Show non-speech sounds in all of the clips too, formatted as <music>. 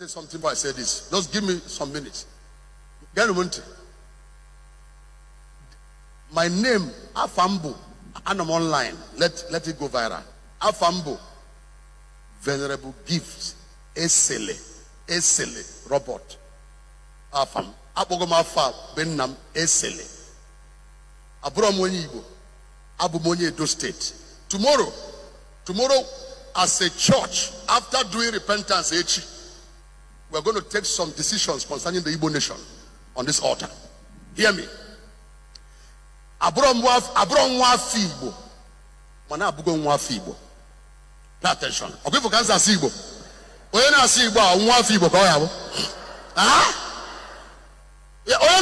say something before I say this. Just give me some minutes. Gary My name, Afambo, and I'm online. Let, let it go viral. Afambo, Venerable Gifts, Esele, Esele, Robot, Afam. Abogoma afọ Benam Esele. Abụrụ m Abụ m onye Tomorrow, tomorrow as a church after doing repentance H we're going to take some decisions concerning the Igbo nation on this altar. Hear me. Abụrụ nwa afọ mana abụgo nwa Pay attention. Ọ bụ ifu na-asị Igbo a nwa afọ Igbo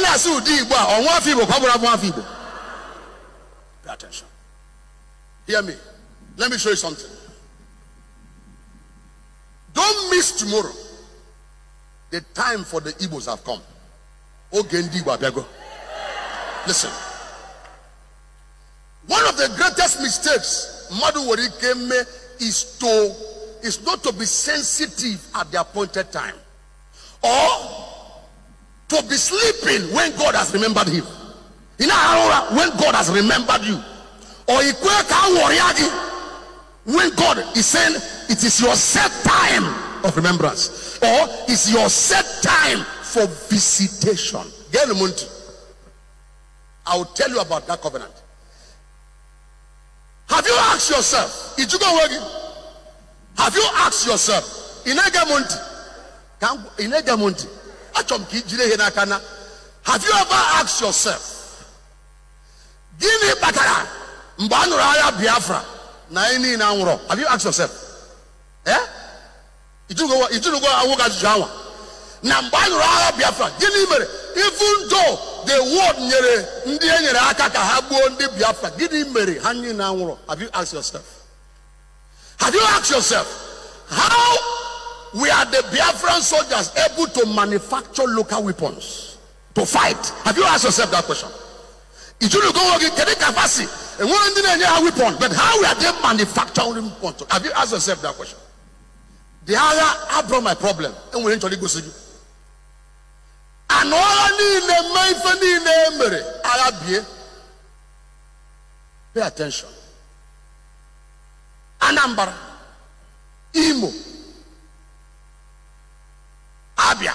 na-asị ụdị Igbo a nwa afọ Igbo Pay attention. Hear me. Let me show you something. Don't miss tomorrow. The time for the Igbos have come. Ogendi Wabego. Listen. One of the greatest mistakes Madu me is to is not to be sensitive at the appointed time. Or to be sleeping when God has remembered him. In Arora, when God has remembered you. Or Ikweka Wariagi, when God is saying it is your set time of remembrance or is your set time for visitation I will tell you about that covenant have you asked yourself did you go working have you asked yourself in Agamonti hena kana"? have you ever asked yourself Give me mgbe a nụrụ agha Biafra na anyị have you asked yourself eh? na mgbe a nyụrụ agha biafra gịnị mere even though the word nyere ndị e nyere aka ka ha gbuo ndị biafra gịnị mere ha niile anwụrụ have you asked yourself have you asked yourself how we are the biafran soldiers able to manufacture local weapons to fight have you asked yourself that question ijinugo nwoke kedu ka fasi enwere ndị na-enye ha weapon but how we are they manufacturing weapons have you asked yourself that question the agha abụrụ my problem enwere nchọrọ igosi gị anụ agha niile mee ife niile e mere agha bie pay attention anambra imo abia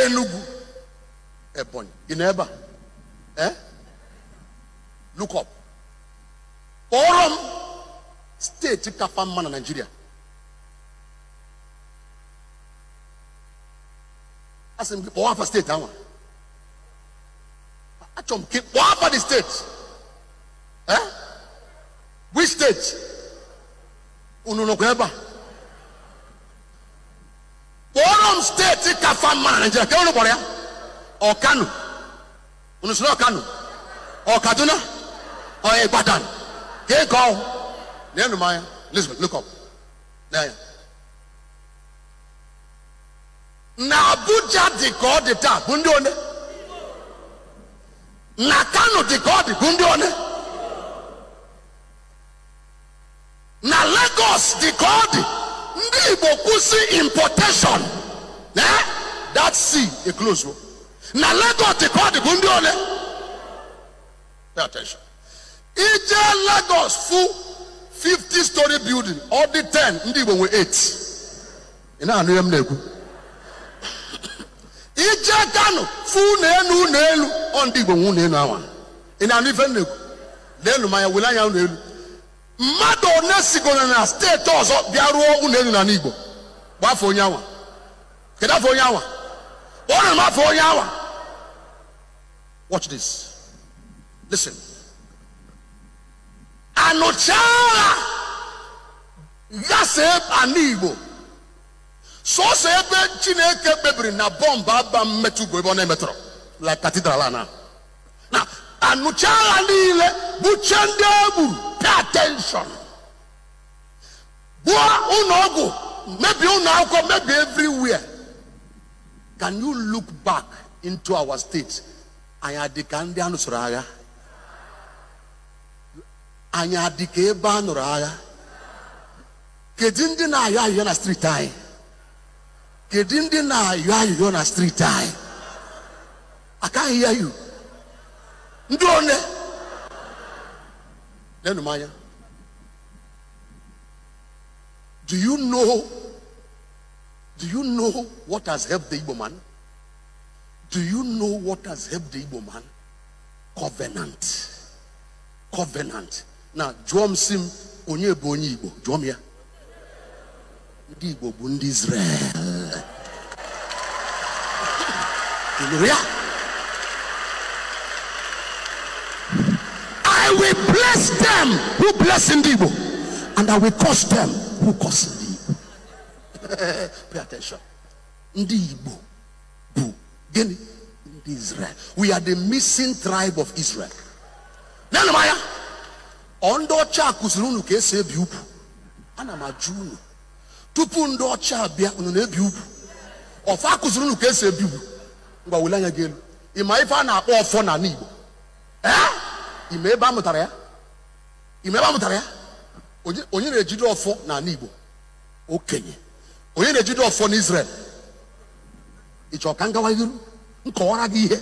enugu ebonyi ị na ebe a eh look up kpọrọ m steeti kafa mma na nigeria. asɛm bi wɔn afa state awa atwam ke wɔn afa the state ɛ which state onunokun ɛba wɔnom state kafa maa nkyɛn kɛwọn no bɔrɛ ɔkano onusoro ɔkano ɔkaduna ɔyɛ gbadan kéèkɔ nínú mayɛ lisbon look up. There. na abuja dị ka ọ dị taa bụ ndị one na kano dị ka ọ dị bụ ndị one na lagos dị ka ọ dị ndị igbo kwụsị importation na that sea eclose na lagos dị ka ọ dị bụ ndị ole pay attention ije lagos fu 50 story building ọ dị 10 ndị igbo nwe 8 ị na-anụ ihe m na-ekwu letanụ fụ unu elu na elu ọ ndị igbo nwe unu elu awa ị na-anụ ife nna ekwu leenu manya wele anya unu elu mmadụ one sigoro na steeti ọzọ bịa rụọ unu elu n'ala igbo afọ onye awa kedu afọ onye awa ọ n'afọ onye awa watch this listen anụchaa igbo sọsọ ebe chineke kpebiri na bọmbụ aba mmetụ bụ ebe ọ na-emetụrụ la katidral na na anụcha agha niile buche ndị egburu pay attention bụọ ụlọ ọgwụ mebie ụlọ akwụkwọ mebie everywhere can you look back into our state anyị adị ka ndị anụsoro agha anyị adị ka ebe a nụrụ agha kedu ndị na-ayọ ahịhịa na steeti anyị You na yɔ ayɔyɔ a street time i can not hear you do you know do you know what has helped the igbo man do you know what has helped the igbo man covenant covenant Now, jụọ Sim, onye bụ igbo jụọ m igbo bụ israel Hallelujah. I will bless them who bless in the evil, and I will curse them who curse in the <laughs> evil. Pay attention. Ndi Igbo, Bu, Israel. We are the missing tribe of Israel. Nana Ondo ndị ọcha akụziri unu ana m tupu ndo ọcha biya unu na ọfa akụziri unu ka ngwa wele anya gị elu ma ife a na-akpọ ọfọ na ee ị ma ebe a mụtara ya ma ebe a mụtara ya onye na-ejide ọfọ na ala igbo okenye onye na-ejide ọfọ na israel ịchọ ka ngawa iru nkọwara gị ihe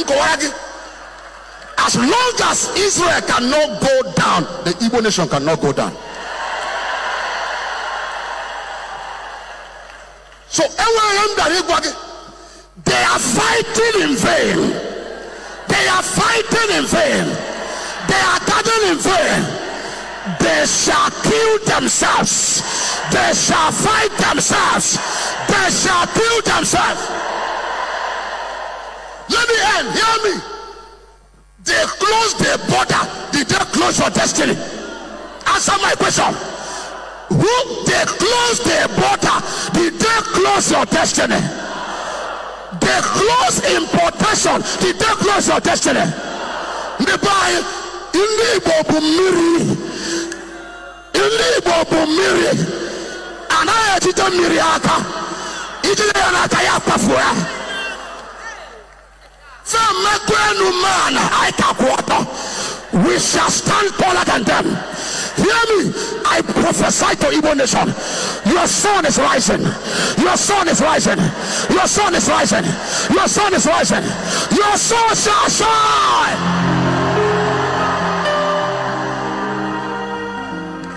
nkọwara gị as long as israel cannot go down the igbo nation cannot go down so enweghị ihe m bịara ịgwa gị They are fighting in vain. They are fighting in vain. They are dying in vain. They shall kill themselves. They shall fight themselves. They shall kill themselves. Let me end. Hear me. They close the border. Did they close your destiny? Answer my question. Who they close the border? Did they close your destiny? the close importation the dey close your destiny mmepe anyị ndị igbo bụ mmiri ndị igbo bụ mmiri anaghị ejide mmiri aka ijide ya n'aka ya kpafuo ya fe mmekọ enu man I ka kwụ we shall stand taller than them. Hear me. I prophesy to Igbo nation. Your son is rising. Your son is rising. Your son is rising. Your son is rising. Your son shall shine.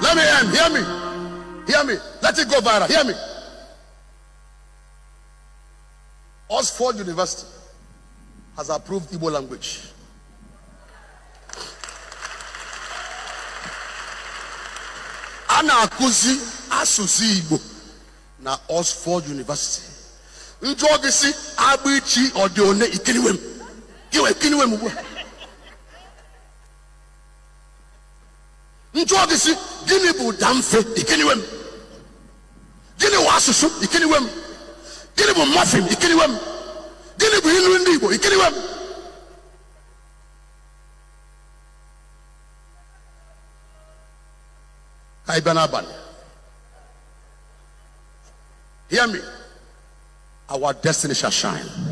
Let me end. Hear me. Hear me. Let it go viral. Hear me. Oxford University has approved Igbo language. a na-akụzi asụsụ igbo na oxford university njụọ gị si agbaichi ọdị one ikiriwe m iwe kiriwe m ugbu a njụọ gị si gịnị bụ ụda mfe ikiriwe m gịnị wụ asụsụ ikiriwe m gịnị bụ mọfin ikiriwe m gịnị bụ ilu ndị igbo ikiriwe m Ibanaban. Hear me. Our destiny shall shine.